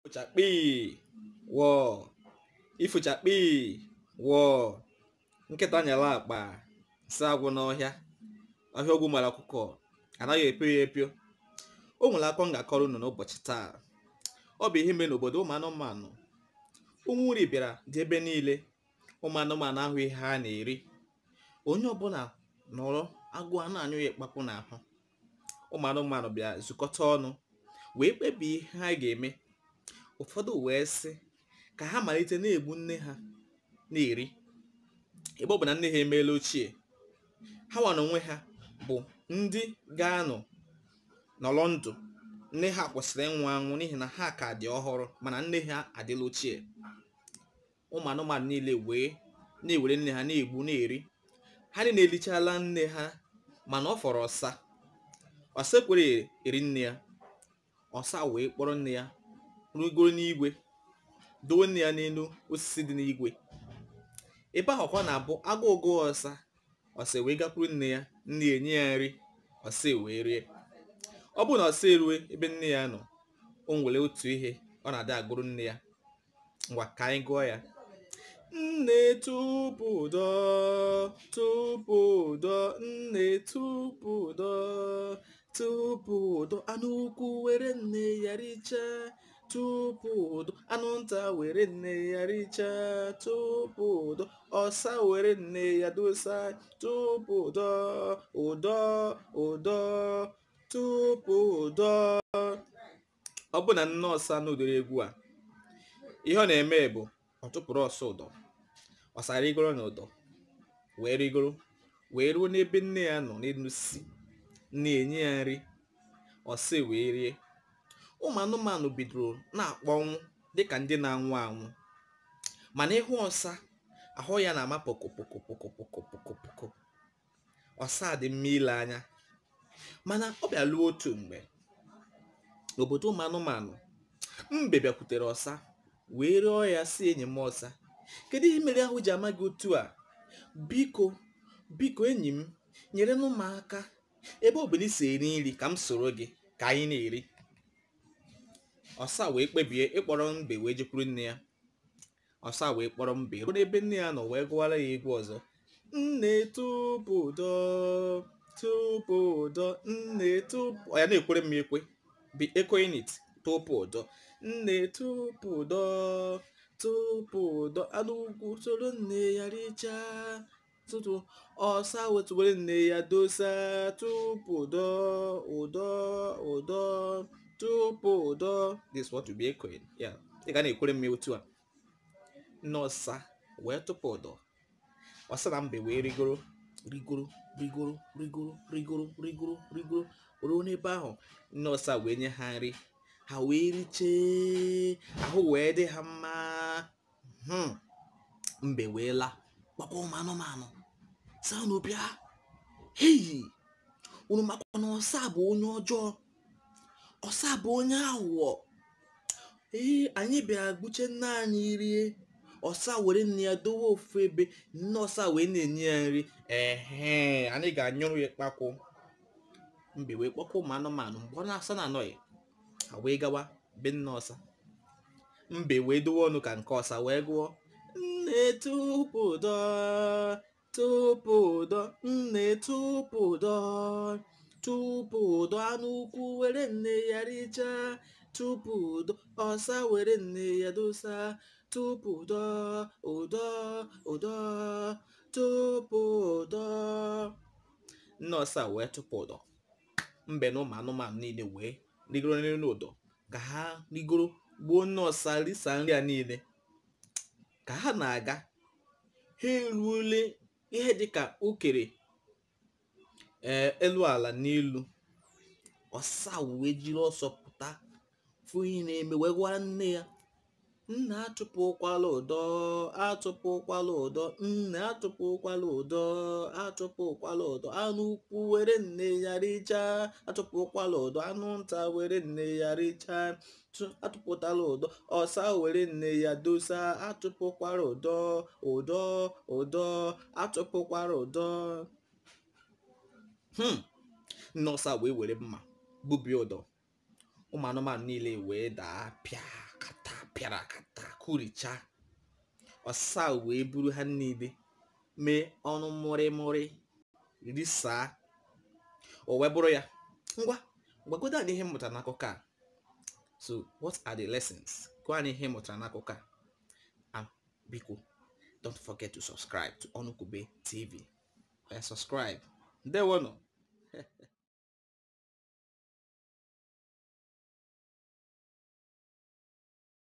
ifochakpi wọọ ifochakpi wọọ nkịta nyere akpa si agwụ n'ọhịa ọhịa ogwu mara ọkụkọ anaghị epio ya epio o nwere akọ ngakọrọ ga-akọrọ n'ụbọchị taa ọ bụ ihe mere n'obodo ụmụ anụmanụ ụmụ nri bịara dị ebe niile ụmụ anụmanụ ahụ ihe ha na-eri onye ọbụla nọrọ agụụ a na-anyụ ya ịkpapụ n'ahụ ụmụ anụmanụ bịara zukọta ọnụ wee kpebie ihe ha ga-eme ụfọdụ wee sị ka ha malite na-egbu nne ha na-eri ebe ọ bụ na nne ha emeela ochie ha na onwe ha bụ ndị ga-anọ n'ọlọ ndụ nne ha kwụsịrị ịnwụ anwụ n'ihi na ha ka dị ọhụrụ mana nne ha adịla ochie ụmụ anụmanụ niile wee na-ewere nne ha na-egbu na-eri ha niile elichala nne ha mana ọ fọrọ ọsa ọsa ekwere eri nne ya ọsa wee kpọrọ nne ya rugoro n'igwe nne ya n'elu osisi dị n'igwe ebe ahụ kwa na-abụ agụ ụgụ ọsa ọsa wee gakwuru nne ya nne enye ya nri ọsa wee rie ọ bụrụ na ọsa erue ebe nne ya nọ o nwere otu ihe ọ na-ada agụrụ nne ya ngwa ka anyị gụọ ya nne tupu ụdọ nne tupu ụdọ anụ ukwu were nne ya richaa tupu udo anụnta were nne ya richaa tupu ụdọ, ọsa were nne ya dosa tupu ụdọ ụdọ ụdọ tupu ụdọ ọ bụ na nne n'ụdịrị egwu a ihe ọ na-eme bụ ọ tụpụrụ ọsọ ụdọ ọsa rigoro na ụdọ wee rigoro wee ruo n'ebe nne ya nọ n'elu na enye ya nri ọsị wee rie ụmụ anụmanụ bidoro na-akpọnwụ dịka ndị na-anwụ anwụ mana ịhụ ọsa ahụ ya na-ama pokopokopokopokopokopoko ọsa dị mma ile anya mana ọ bịaluo otu mgbe obodo ụmụ anụmanụ mbe bịakwutere ọsa wee rịọ ya si enyi m ọsa kedu ihe mere ahụ ji ama gị otu a biko biko enyi m nyere m aka ebe si eri nri ka m soro gị ka anyị na-eri ọsa wee kpebie ịkpọrọ mbe wee jekwuru nne ya ọsa wee kpọrọ mbe ruo n'ebe nne ya nọ wee gụwara ya egwu ọzọ nne tụbụdọ tụbụdọ nne tụbụ ya na-ekwere m ekwe bi echoing it tụbụdọ nne tụbụdọ tụbụdọ anụ ugwu soro nne ya richaa tụtụ ọsa wetụwere nne ya dosa tụbụdọ ụdọ ụdọ tupu ụdọ this what to be ya ị ga na-ekwere m otu a nọsa wee tụpụ ụdọ ọsa na mbe wee rigoro rigoro rigoro rigoro rigoro rigoro rigoro ruo n'ebe ahụ nọsa wee nye ha nri ha wee richee ahụ wee dị ha mma hmm. mbe wee laa gbakwa ụmụ anụmanụ saa n'obi ha heyi unu makwa na ọsa bụ onye ọjọọ ọsa bụ onye aghụghọ ee anyị bịara gbuche nna anyị rie ọsa were nne ya dowe ofu ebe nne ọsa wee na-enye ya nri ehe anyị ga-anyụrụ ya kpakwụ mbe wee kpọkwa ụmụ anụmanụ mgbe ọ na-asa na anọghị ha wee gawa be nne ọsa mbe wee dowe ọnụ ka nke ọsa wee gụọ nne tupu dọ nne tupu tupu ụdọ anụ ukwu were nne ya richaa tupu ụdọ ọsa were nne ya dosa tupu ụdọ ụdọ ụdọ tupu ụdọ nne ọsa wee tupu ụdọ mbe na ụmụ anụmanụ niile wee rigoro nri ụdọ ka ha rigoro gbuo nne ọsa risa nri a niile ka ha na-aga ha ihe dịka ukere ee eh, elu ala n'elu ọsa wee jiri ọsọ pụta fụ ihe na-eme wee gwara nne ya nna atụpụkwala ụdọ atụpụkwala ụdọ nna atụpụkwala ụdọ atụpụkwala ụdọ anụ ukwu were nne ya richaa atụpụkwala ụdọ anụ nta were nne ya richaa atụpụtala ụdọ ọsa were nne ya dosa atụpụkwala ụdọ ụdọ ụdọ Atụpụkwala ụdọ Hmm. Nne a wee were mma gbubi ụdọ ụmụ anụmanụ niile wee daa pịa kata pịara akata kuricha ọsa wee buru ha niile mee ọnụ mụrịmụrị risaa o wee bụrụ ya ngwa gwagodo anyị ihe mụtara n'akụkọ a so what are the lessons gwa anyị ihe mụtara n'akụkọ a biko don't forget to subscribe to Onukwu TV subscribe de bueno.